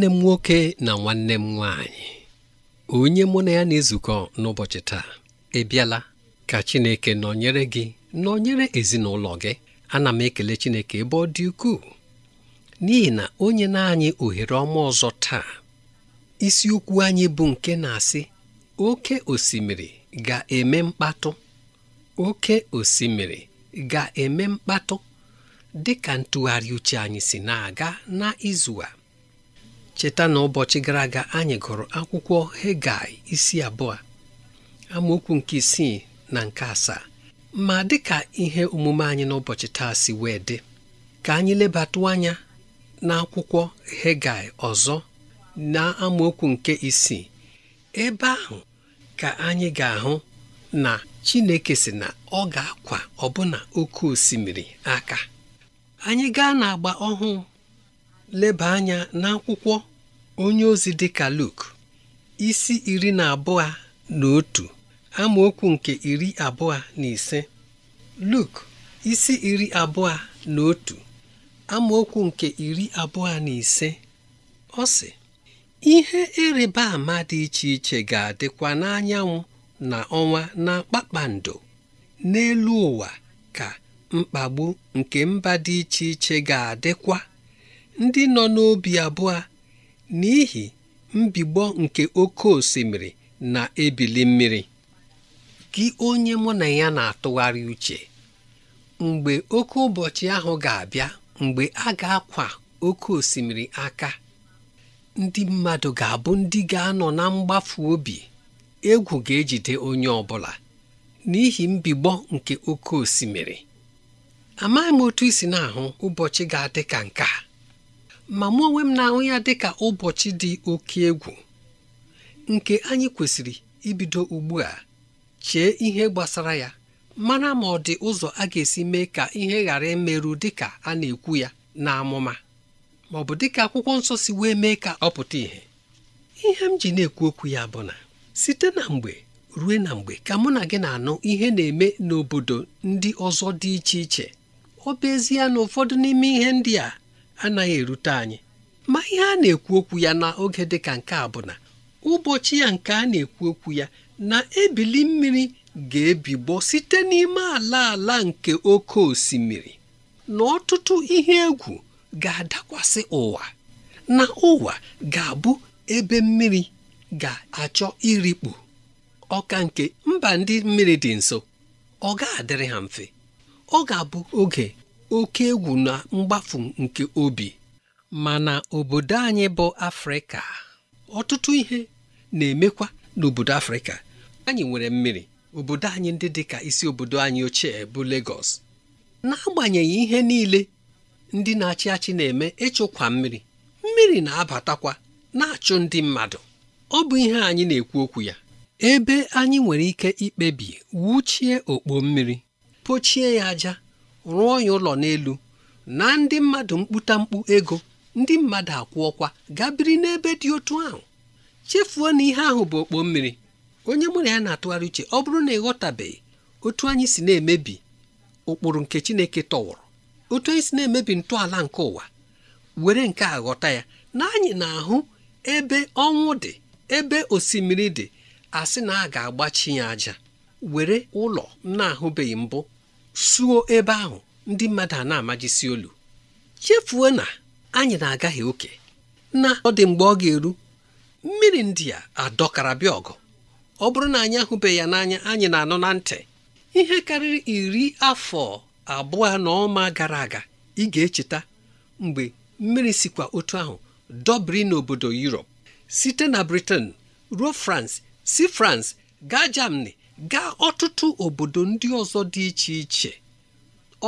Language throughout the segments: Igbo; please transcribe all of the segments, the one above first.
nwanne m nwoke na nwanne m nwanyị onye mụ na ya na-ezukọ n'ụbọchị taa ị ka Chineke nọnyere gị nọnyere ezinụlọ gị ana m ekele Chineke ebe ọ dị ukwuu n'ihi na onye na-anyị ohere ọma ọzọ taa isiokwu anyị bụ nke na-asị oke osimiri ga-eme mkpatụ oke osimiri ga-eme mkpatụ dị ka ntụgharị uche anyị si na-aga na izu a cheta na ụbọchị gara aga anyị gụrụ akwụkwọ Hegai isi abụọ amaokwu nke isii na nke asaa ma dịka ihe omume anyị n'ụbọchị taa si wee dị ka anyị lebatụ anya n'akwụkwọ Hegai ọzọ na amaokwu nke isii ebe ahụ ka anyị ga-ahụ na Chineke si na ọ ga-akwa ọbụna oke osimiri aka anyị gaa n'agba ọhụụ leba anya n'akwụkwọ onye ozi dị ka Luk isi iri na abụọ na otu amaokwu nke iri abụọ na ise Luk isi iri abụọ na otu amaokwu nke iri abụọ na ise ọ sị ihe ịrịba ama dị iche iche ga-adịkwa n'anyanwụ na ọnwa na kpakpando n'elu ụwa ka mkpagbu nke mba dị iche iche ga-adịkwa ndị nọ n'obi abụọ n'ihi mbigbọ nke oke osimiri na-ebili mmiri gị onye mụ na ya na-atụgharị uche mgbe oke ụbọchị ahụ ga-abịa mgbe a ga-akwa oke osimiri aka ndị mmadụ ga-abụ ndị ga-anọ na mgbafu obi egwu ga-ejide onye ọ bụla n'ihi mbigbọ nke oke osimiri amaghị m otu isi na-ahụ ụbọchị ga-adị ka nke a ma mụ onwe m na-ahụ ya dị ka ụbọchị dị oke egwu nke anyị kwesịrị ibido ugbu a chee ihe gbasara ya mana ma ọ dị ụzọ a ga-esi mee ka ihe ghara imerụ dịka a na-ekwu ya na amụma ma ọ bụ dịka akwụkwọ nsọ si wee mee ka ọ pụta ìhè ihe m ji na-ekwu okwu ya bụ na site na mgbe ruo na mgbe ka mụ na gị na-anụ ihe na-eme n'obodo ndị ọzọ dị iche iche ọ bụ ezie na ụfọdụ n'ime ihe ndị a anaghị erute anyị ma ihe a na-ekwu okwu ya n'oge dị ka nke a bụ na ụbọchị ya nke a na-ekwu okwu ya na ebili mmiri ga-ebigbo site n'ime ala ala nke oke osimiri na ọtụtụ ihe egwu ga-adakwasị ụwa na ụwa ga-abụ ebe mmiri ga-achọ irikpu ọka nke mba ndị mmiri dị nso ọ ga-adịrị ha mfe ọ ga-abụ oge oke egwu na mgbafu nke obi mana obodo anyị bụ afrịka ọtụtụ ihe na-emekwa n'obodo afrịka anyị nwere mmiri obodo anyị ndị dị ka isi obodo anyị ochie bụ Lagos n'agbanyeghị ihe niile ndị na-achị achị na-eme ịchụkwa mmiri mmiri na-abatakwa na-achụ ndị mmadụ ọ bụ ihe anyị na-ekwu okwu ya ebe anyị nwere ike ikpebi wuchie okpo mmiri pochie ya aja rụọ ya ụlọ n'elu na ndị mmadụ mkpụta mkpu ego ndị mmadụ akwụọkwa gaa biri n'ebe dị otu ahụ chefuo na ihe ahụ bụ okpo mmiri onye mụrụ ya na-atụgharị uche ọ bụrụ na ịghọtabeghị otu anyị si na-emebi ụkpụrụ nke Chineke tọwụrụ otu anyị si na-emebi ntọala nke ụwa were nke a ghọta ya na anyị na-ahụ ebe ọnwụ dị ebe osimiri dị asị na a ga-agbachi ya aja were ụlọ na-ahụbeghị mbụ suo ebe ahụ ndị mmadụ a na-amajisi olu chefuo na anyị na-agaghị oke na ọ dị mgbe ọ ga-eru mmiri ndị a adọkara bịa ọgụ ọ bụrụ na anyị ahụbeghị ya n'anya anyị na anọ na ntị ihe karịrị iri afọ abụọ na ọma gara aga ị ga-echeta mgbe mmiri sikwa otu ahụ dọbiri n'obodo Europe site na Britain ruo France si France gaa Germany gaa ọtụtụ obodo ndị ọzọ dị iche iche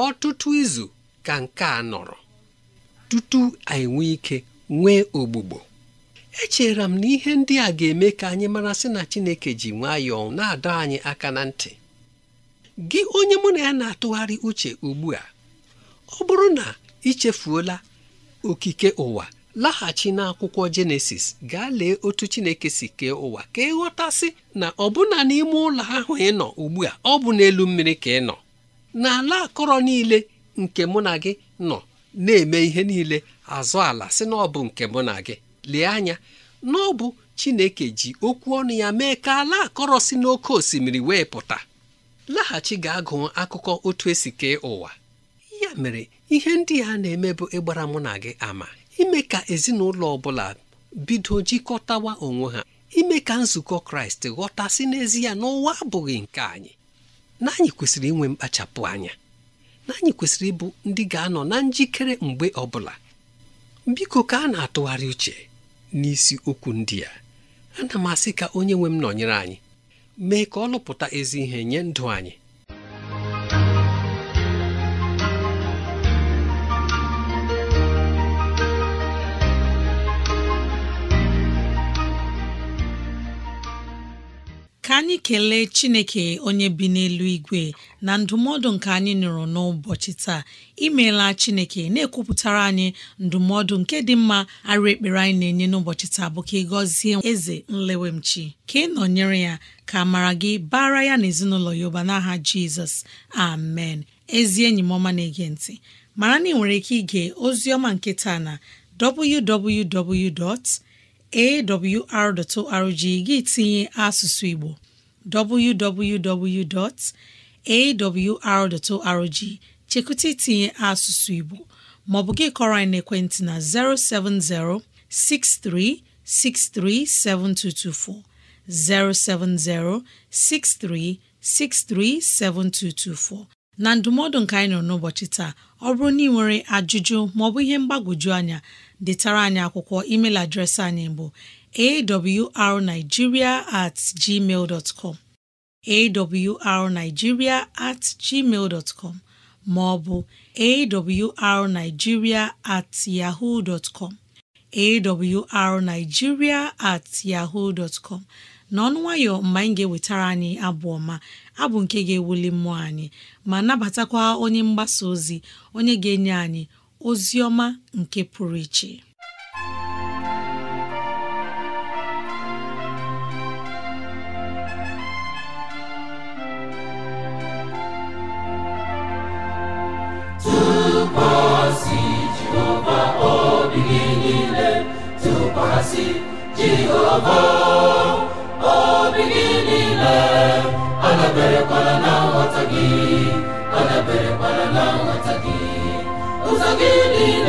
ọtụtụ izu ka nke a nọrọ tutu anyị nwee ike nwee ogbugbo echere m na ihe ndị a ga-eme ka anyị mara sị na Chineke ji nwayọọ na-adọ anyị aka na ntị gị onye mụ na ya na-atụgharị uche ugbu a ọ bụrụ na ichefuola okike ụwa laghachi n'akwụkwọ jenesis gaa lee otu chineke si kee ụwa ka ị ghọtasị na ọbụna n'ime ụlọ ahụ ị nọ ugbu a ọ bụ n'elu mmiri ka ị nọ na ala akọrọ niile nke mụ na gị nọ na-eme ihe niile azụ ala si na ọ bụ nke mụ na gị lee anya na ọ bụ chineke ji okwu ọnụ ya mee ka ala akọrọ si n'oké osimiri wee pụta laghachi ga gụọ akụkọ otu esi kee ụwa ya mere ihe ndị a na-eme bụ ịgbara mụ na gị ama ime ka ezinụlọ ọbụla bido jikọtawa onwe ha ime ka nzukọ kraịst ghọtasị n'ezie n'ụwa abụghị nke anyị na anyị kwesịrị inwe mkpachapụ anya na anyị kwesịrị ịbụ ndị ga-anọ na njikere mgbe ọbụla biko ka a na-atụgharị uche n'isi okwu ndị a ana m asị ka onye nwe m nọnyere anyị mee ka ọ lụpụta ezi ihe nye ndụ anyị ka anyị kelee chineke onye bi n'elu igwe na ndụmọdụ nke anyị nụrụ n'ụbọchị taa imeela chineke na-ekwupụtara anyị ndụmọdụ nke dị mma arụ ekpere anyị na-enye n'ụbọchị taa bụ ka ị gọzie eze nlewemchi ka ị nọnyere ya ka mara gị bara ya na ezinụlọ ya ụba n'aha jizọs amen ezi enyi m ọma na-ege ntị mara na ị nwere ike ige ozi ọma nke taa na www. awr.org gị tinye asụsụ Igbo www.awr.org chekụta itinye asụsụ Igbo maọbụ gị kọrọ anyị n'ekwentị na 070 6363 7224 070 6363 7224 na ndụmọdụ nke anyị nọ n'ụbọchị taa ọ bụrụ na ị nwere ajụjụ maọbụ ihe mgbagwoju anya detara anyị akwụkwọ email adreesị anyị bụ arigiria at gmail dot com awrnigeria at gmail com maọbụ arigiria at yahoo com awrnigeria at yahoo com n'ọnụ nwayọ mgbe anyị ga-ewetara anyị ha bụ nke ga-ewuli mmụọ anyị ma nabatakwa onye mgbasa ozi onye ga-enye anyị ozi ọma nke pụrụ iche tụkwasị Jehova obi gị niile tụkwasị Jehova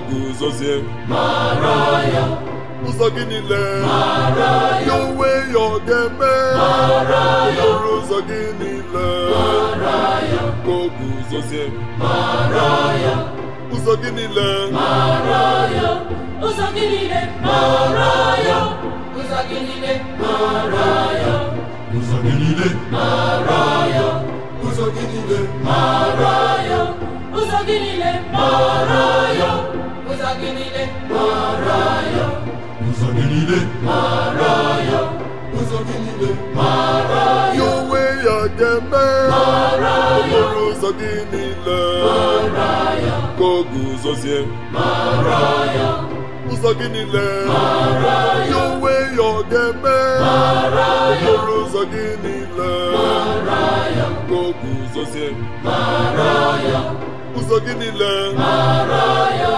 guzozie ụzọ gị niile ya onwe ya ọ ga-eme ọrụ ụzọ gị niile ya. guzozie ụzọ gị niile ụzọ gị niile ụzọ gị niile ụzọ gị niile ụzọ gị niile ụzọ gị niile gị niile mara ya ụzọ gị niile mara ya ụzọ gị niile mara ya ya onwe ya ga-eme mara ya ụzọ gị niile mara ya ka ọ guzozie mara ya ụzọ gị niile mara ya onwe ya ọ ga-eme ụzọ gị niile mara ya ka ọ guzozie mara ya ụzọ gị niile mara ya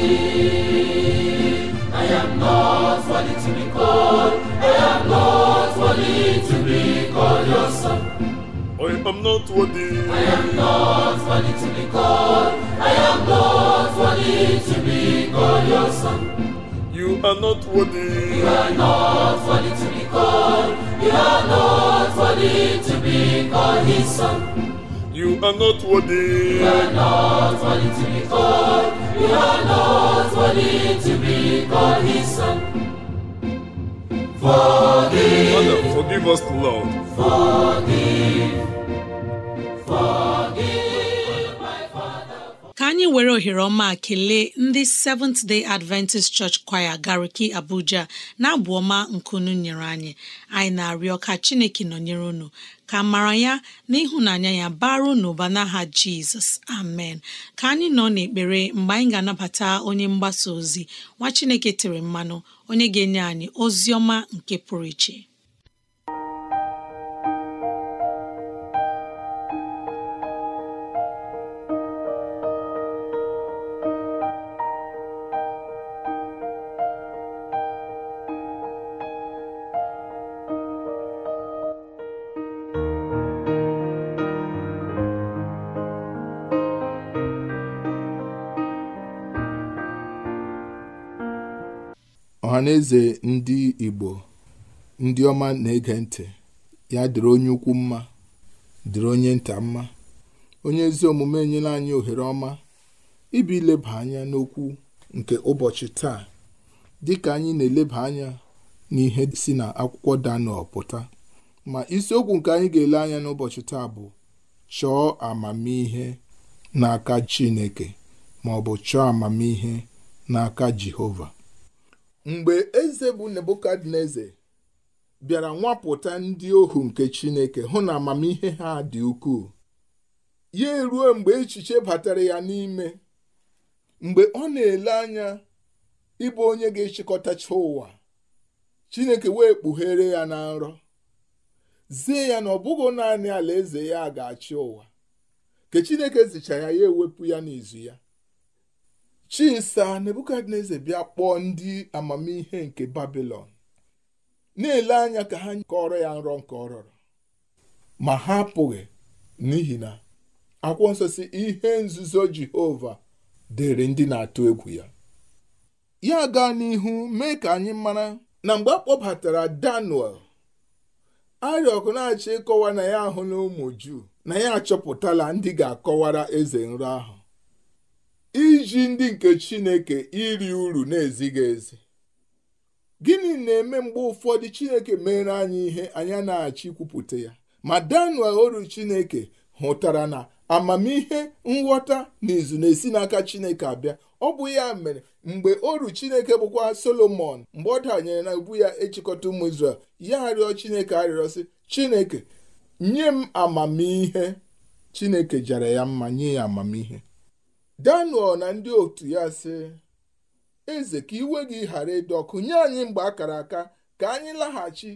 I am not worthy to be called. I am not worthy to be called your son. I am not worthy. I am not worthy to be called. I am not worthy to be called your son. You are not worthy. You are not worthy to be called. You are not worthy to be called his son. You are not worthy. You are not worthy to be called. Ka anyị were ohere ọma kelee ndị Seventh Day Adventist Church Choir Gariki Abuja na abụ ọma nkunu nyere anyị anyị na-arịọ ka Chineke nọnyere unu ka mara ya na ịhụnanya ya baru n'ụba n'aha jizọs amen ka anyị nọ n'ekpere mgbe anyị ga-anabata onye mgbasa ozi nwa chineke tere mmanụ onye ga-enye anyị ozi ọma nke pụrụ iche ọhaneze ndị Igbo ndị ọma na-ege ntị ya dịrị onye ukwu mma dịrị onye nta mma onye ezi omume enyela anyị ohere ọma ibi ileba anya n'okwu nke ụbọchị taa dịka anyị na-eleba anya n'ihe si na akwụkwọ Daniel pụta ma isiokwu nke anyị ga-ele anya n'ụbọchị taa bụ chọọ amamihe n'aka Chineke ma ọ bụ chọọ amamihe n'aka Jehova mgbe eze bụ nebukadneze bịara nwapụta ndị ohu nke chineke hụ na amamihe ha dị ukwuu ya eruo mgbe echiche batara ya n'ime mgbe ọ na-ele anya ịbụ onye ga-echịkọtacha ụwa chineke wee kpughere ya na nrọ zie ya na ọ bụghị naanị alaeze ya ga-achị ụwa ka chineke zichara ya ewepụ ya n'izu ya chisa nebukadneza bịa kpọọ ndị amamihe nke babilon na-ele anya ka ha kọrọ ya nrọ nke ọ ma ha apụghị n'ihi na akwụkwọ nsọ ihe nzuzo jehova dịrị ndị na-atụ egwu ya ya gaa n'ihu mee ka anyị mara na mgbe a kpọbatara daniel arịọkụ na ịkọwa na ya ahụ na ụmụ juu na ya achọpụtala ndị ga-akọwara eze nrọ ahụ iji ndị nke chineke iri uru na-ezighị ezi gịnị na-eme mgbe ụfọdụ chineke mere anyị ihe anya na-achị kwupụta ya ma daniel oru chineke hụtara na amamihe nghọta na na-esi n'aka chineke abịa ọ bụ ya mere mgbe oru chineke bụkwa solomon mgbe ọ danyere na ubu ya ịchịkọta ụmụ israel ya arịọ chineke arịrịọ sị chineke nye m amamihe chineke jara ya mma nye ya amamihe daniel na ndị otu ya sị eze ka iwe gị ghara ịdị ọkụ nye anyị mgbe akara aka ka anyị laghachi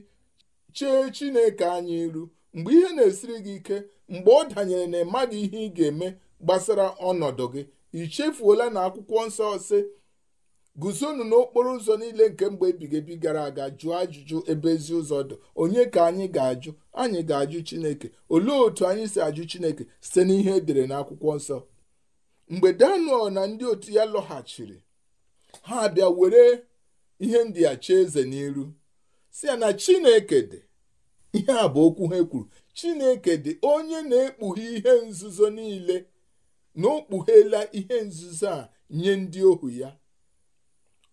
chee chineke anyị iru mgbe ihe na-esiri gị ike mgbe ọ danyere na ịmaghị ihe ị ga-eme gbasara ọnọdụ gị ichefuola na akwụkwọ nsọ sị guzonu n'okporo ụzọ niile nke mgbe ebighị ebi gara aga jụọ ajụjụ ebe ezi ụzọ dụ onye ka anyị ga-ajụ anyị ga-ajụ chineke olee otu anyị si ajụ chineke site n'ihe edere n'akwụkwọ nsọ mgbe daniel na ndị otu ya lọghachiri ha abịa were ihe ndị achọ eze n'iru si ya na chineke dị ihe a bụ okwu ha kwuru chineke dị onye na-ekpughe ihe nzuzo niile na o kpughela ihe nzuzo a nye ndị ohu ya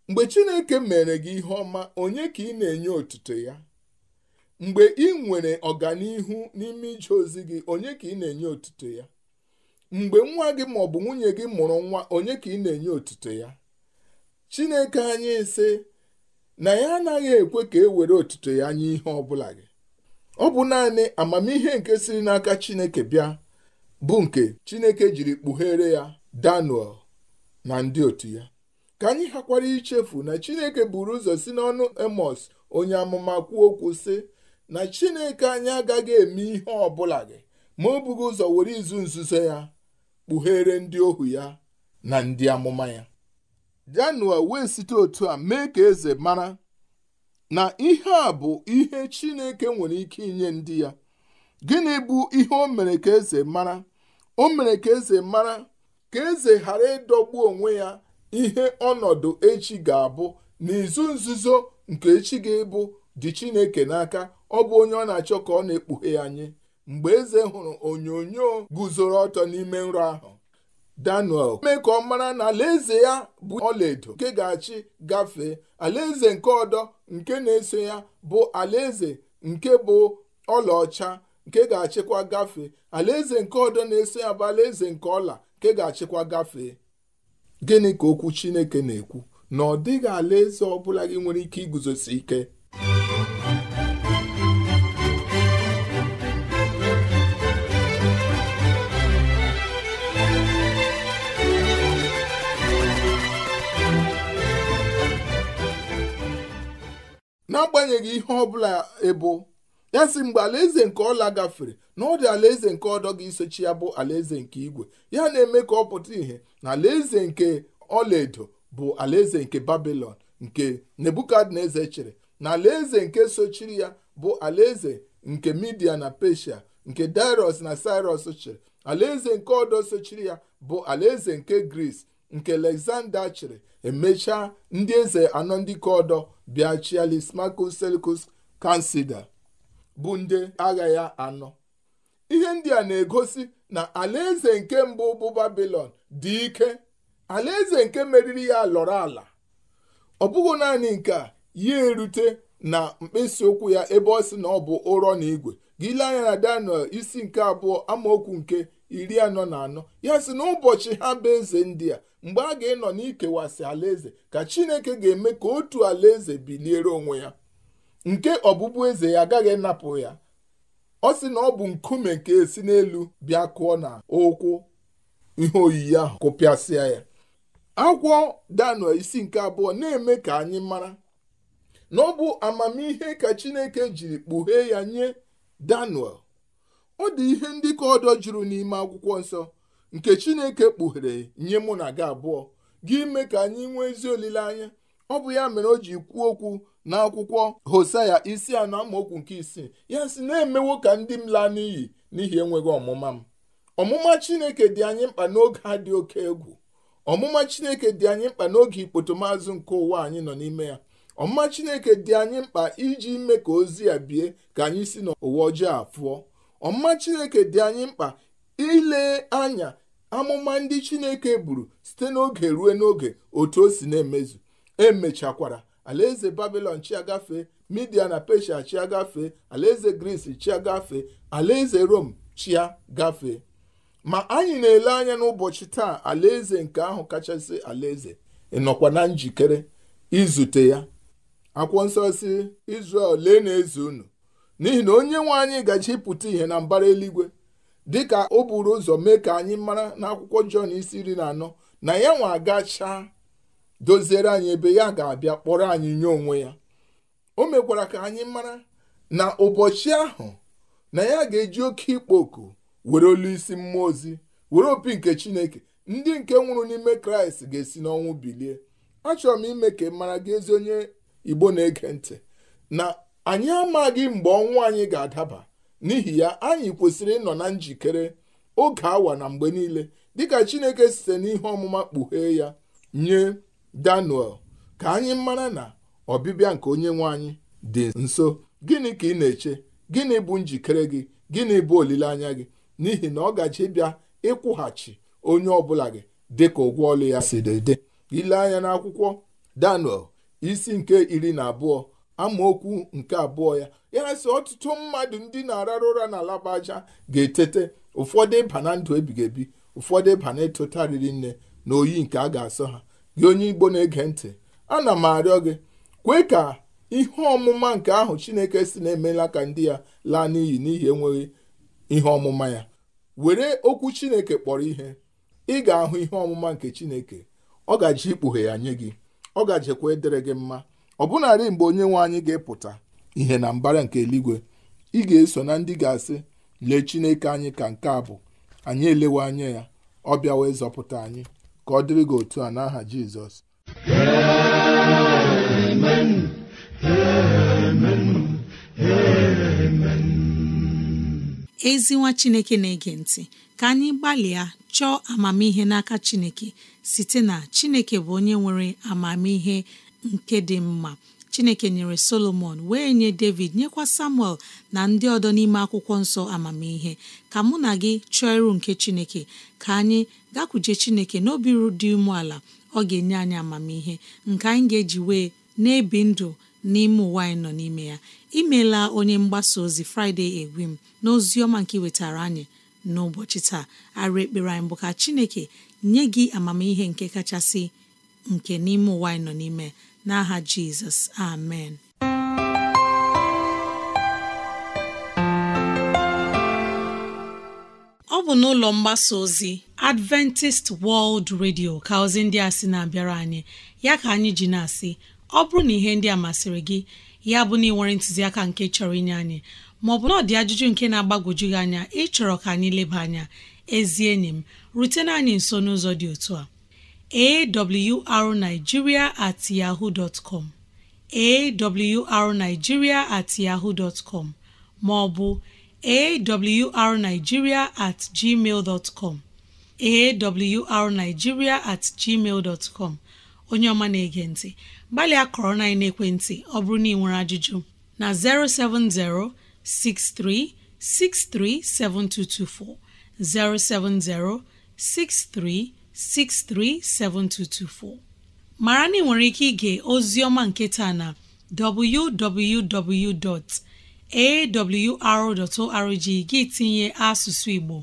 mgbe chineke mere gị ihe ọma onye ka ị na-enye otuto ya mgbe ị nwere ọganihu n'ime ije ozi gị onye ka ị na-enye otuto ya mgbe nwa gị ma ọ bụ nwunye gị mụrụ nwa onye ka ị na-enye otuto ya chineke anyị ise na ya anaghị ekwe ka e were otuto ya nye ihe ọbụla gị ọ bụ naanị amamihe nke siri n'aka chineke bịa bụ nke chineke jiri kpughere ya daniel na ndị otu ya ka anyị hakwara ichefu na chineke buru ụzọ si n'ọnụ emos onye amụma kwuo okwu sị na chineke anyị agaghị eme ihe ọ bụla gị ma o bughị ụzọ were izu nzuzo ya kpughere ndị ohu ya na ndị amụma ya Janua wee site otu a mee ka eze mara na ihe a bụ ihe Chineke nwere ike inye ndị ya gịnị bụ ihe o mere ka eze mara o mere ka eze mara ka eze ghara ịdọgbu onwe ya ihe ọnọdụ echi ga-abụ n'izu nzuzo nke echi ga-ebu dị Chineke n'aka ọ bụ onye ọ na-achọ ka ọ na-ekpughe ya nye mgbe eze hụrụ onyonyo guzoro ọtọ n'ime nrọ ahụ daniel mee ka ọ mara na alaeze ya bụ ọlaedo nke ga-achị gafee alaeze nke ọdọ nke na-eso ya bụ alaeze nke bụ ọlaọcha nke ga-achịkwa gafee alaeze nke ọdọ na-eso ya bụ alaeze nke ọla nke ga-achịkwa gafee gịnị ka okwu chineke na-ekwu na ọ dịghị alaeze ọ bụla gị nwere ike iguzosi ike n'agbanyeghị ihe ọbụla ebo ya si mgbe alaeze nke ọla gafere na ọ dị alaeze nke ọdọ ga-esochi ya bụ alaeze nke igwe ya na-eme ka ọ pụta ìhè na alaeze nke ọlaedo bụ alaeze nke babilon nke nebukadneze chịrị na alaeze nke sochiri ya bụ alaeze nke midia na pesia nke dairos na sirus chịrị alaeze nke ọdọ sochiri ya bụ alaeze nke gris nke alexander chịrị emechaa ndị eze anọ ndị ka ọdọ bịa chialis marcus bụ ndị agha ya anọ ihe ndị a na-egosi na alaeze nke mbụ bụ babilon dị ike alaeze nke meriri ya lọrọ ala ọ bụghị naanị nke a ya erute na mkpịsị ụkwụ ya ebe ọ sị na ọ bụ ụrọ na igwe gị anya na daniel isi nke abụọ amaokwu nke iri anọ na anọ ya sị na ụbọchị ha bụ eze ndị a mgbe a ga-enọ n'ikewasị alaeze ka chineke ga-eme ka otu alaeze biliere onwe ya nke ọbụbụeze ya agaghị napụ ya ọ sị na ọ bụ nkume nke esi n'elu bịa kụọ na ụkwụ ihe oyiyi ahụ kụpịasịa ya akwụkwọ daniel isi nke abụọ na-eme ka anyị mara na ọ bụ amamihe ka chineke jiri kpughee ya nye Daniel ọ dị ihe ndị ka ọdọ juru n'ime akwụkwọ nsọ nke Chineke kpughere nye mụ na gị abụọ gị ime ka anyị nwee ezi olileanya ọ bụ ya mere o ji kwuo okwu n'akwụkwọ ya isi anọ amaokwu nke isii ya si na-emewo ka ndị m laa n'iyi n'ihi enweghị ọmụma m ọmụma Chineke dị anyị mkpa n'oge a dị oke egwu ọmụma Chineke dị anyị mkpa n'oge ikpotomazụ nke ụwa anyị nọ n'ime ya ọmụma chineke dị anyị mkpa iji ime ka ozi ya bie ka anyị si n'ụwa ọjọọ afụọ ọmụma chineke dị anyị mkpa ile anya amụma ndị chineke buru site n'oge ruo n'oge otu o si na-emezu emechakwara alaeze babilon chiagafe midia na pesha chiagafe alaeze gris chiagafe alaeze rom chia gafee ma anyị na-ele anya n'ụbọchị taa alaeze nke ahụ kachasị alaeze ịnọkwa na njikere izute ya akwụkwọ nsọ si Izrel lee na-eze unu n'ihi na onye nwe anyị gachipụta ihe na mbara eluigwe dịka o buru ụzọ mee ka anyị mara na akwụkwọ Jọn isi iri na anọ na ya nwa agachaa doziere anyị ebe ya ga-abịa kpọrọ anyị nye onwe ya o mekwara ka anyị mara na ụbọchị ahụ na ya ga-eji oke ịkpọ oku were olu isi mmụọ ozi were opi nke Chineke ndị nke nwụrụ n'ime Kraịst ga-esi n'ọnwụ bilie achọrọ m ime ka ị mara gị ezi onye igbo na-ege ntị na anyị amaghị mgbe ọnwụ anyị ga-adaba n'ihi ya anyị kwesịrị ịnọ na njikere oge awa na mgbe niile dịka chineke site n'ihe ọmụma kpughee ya nye daniel ka anyị mara na ọbịbịa nke onye nwe anyị dị nso gịnị ka ị na-eche gịnị bụ njikere gị gịnị bụ olileanya gị n'ihi na ọ gaji bịa ịkwụghachi onye ọ bụla gị dịka ụgwọ ọlụ ya si dị ile anya n'akwụkwọ daniel isi nke iri na abụọ amaokwu nke abụọ ya ya sị ọtụtụ mmadụ ndị na-arara ụra na aja ga-etete ụfọdụ ịba na ndụ ebighị ebi ụfọdụ ịba na riri nne na oyi nke a ga-asọ ha gị onye igbo na-ege ntị ana m arịọ gị kwee ka ihe ọmụma nke ahụ chineke si na-emela ka ndị ya laa n'iyi n'ihi enweghị ihe ọmụma ya were okwu chineke kpọrọ ihe ị ga-ahụ ihe ọmụma nke chineke ọ gaji ikpughe ya nye gị ọ ga gajekwa edere gị mma ọ bụnarị mgbe onye nwe anyị ga-epụta ihe na mbara nke eluigwe ị ga-eso na ndị ga-asị lee chineke anyị ka nke a bụ anyị elewe anya ya ọ wee zọpụta anyị ka ọ dịrị gị otu a n'aha Jizọs ezinwa chineke na-ege ntị ka anyị gbalịa chọọ amamihe n'aka chineke site na chineke bụ onye nwere amamihe nke dị mma chineke nyere solomon wee nye david nyekwa samuel na ndị ọdọ n'ime akwụkwọ nsọ amamihe ka mụ na gị chọọ ịrụ nke chineke ka anyị gakwuje chineke n'obi dị umeala ọ ga-enye anyị amamihe nke anyị ga-eji wee na-ebi ndụ n'ime ụwa anyị nọ n'ime ya imeela onye mgbasa ozi fraịde egwim m na ozi ọma nke wetara anyị n'ụbọchị taa arụ ekpere anyị bụ ka chineke nye gị amamihe nke kachasị nke n'ime ụwa anyị nọ n'ime n'aha jizọs amen ọ bụ n'ụlọ mgbasa ozi adventist world radio ka ndị a sị na-abịara anyị ya ka anyị ji na-asị ọ bụrụ na ihe ndị a masịrị gị ya bụ na ị nwere ntụziaka nke chọrọ inye anyị maọbụ na ọ dị ajụjụ nke na-agbagwoju gị anya ịchọrọ ka anyị leba anya ezi enyi m rutena anyị nso n'ụzọ dị otu a arigiria at yahoo com awrnigeria at maọbụ arigiria at gmail at gmail onye ọma na-ege ntị gbalịa kọrọ na ekwentị ọ bụrụ na ị nwere ajụjụ na 070 63 7224 070 6363 7224 mara na ị nwere ike ige ozi ọma nke taa na www.awr.org gị tinye asụsụ Igbo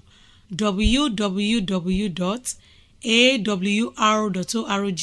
www.awr.org